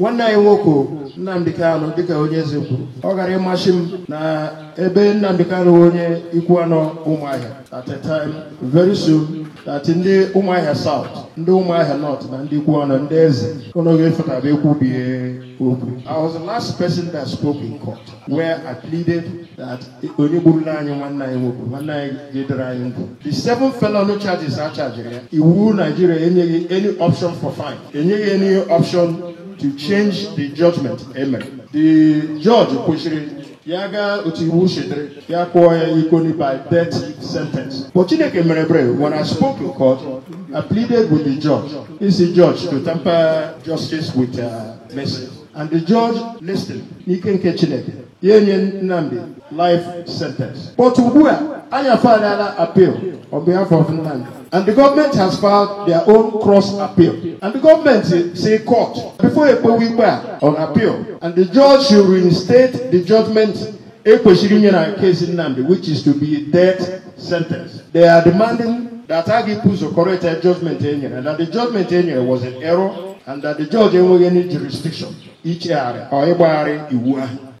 nwanne anyị nwoke Nnamdi Kanu dịka onye eze kwuru ọ gara ịmasị m na ebe Nnamdi Kanu onye ikwu anọ ụmụahịa at a time very soon that ndị ụmụahịa south ndị ụmụahịa north na ndị ikwu anọ ndị eze onoge fetaba bie okwu I was the last person that spoke in court where I pleaded that onye gburu n'anyị nwanne anyị nwoke nwanne anyị jedere anyị ndụ the seven felony charges a charge ya iwu Nigeria enyeghị any option for fine enyeghị any option to change the judgment eme the judge kwesịrị ya gaa otu iwu chedere ya kpụọ ya ikoni by death sentence but chineke mere brave when i spoke in court i pleaded with the judge he the judge to tamper justice with uh, mercy and the judge listened n'ike nke chineke ya enye Nnamdi life sentence but ugbu a anyị afagharịala appeal on behalf of Nnamdi and the government has filed their own cross appeal and the government say court before ekpewe ikpe a on appeal and the judge should reinstate the judgment ekwesịrị inye na case Nnamdi which is to be death sentence they are demanding that Agipu is the correct judgment enye and that the judgment enye was an error and that the judge enweghị any jurisdiction ichegharị or ịgbagharị iwu ahụ